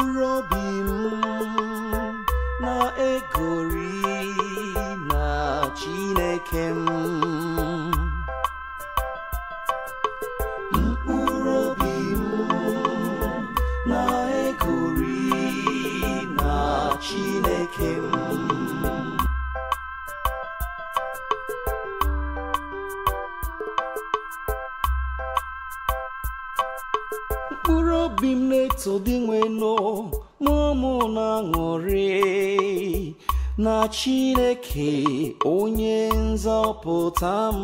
mkpụrụ m na-egori na Chineke m na Chineke m mkpụrụ obi m na-eto dị nwenu n'ụmụ na-aṅụrị na chineke onye nzọpụta m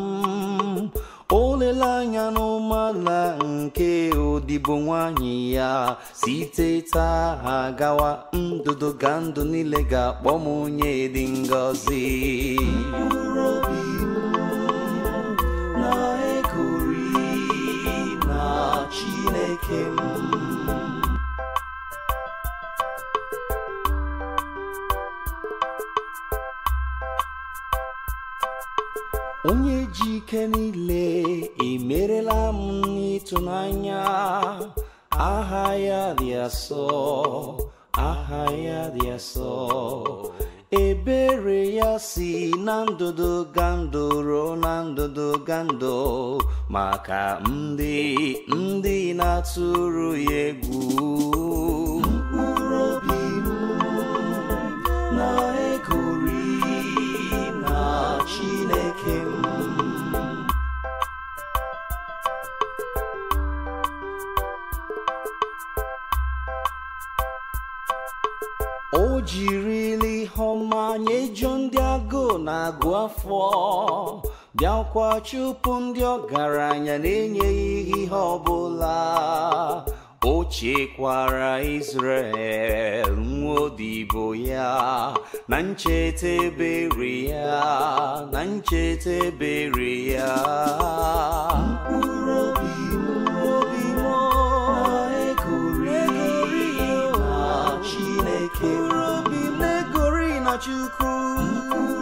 oleleanya n'ụmụala nke odibo nwanyị ya site taa gawa ndụdụ ga ndụ niile ga-akpọ m onye dị ngọzi na ekori na chineke m onye ji ike niile emerela m n'ịtụnanya aha ya dị asọ aha ya dị asọ ebere ya si na ndụdụ gandụ ruo na ndụdụ gandụ maka ndị ndị na-atụrụ ya egwu o jirila ihe ọma nyejuo ndị agụụ na-agụ afọ bịakwa chụpụ ndị ọgaranya na-enyeghị ihe ọbụla o chekwara Israel nwodibo ya na ncheta ebere ya na ncheta ebere ya 就哭。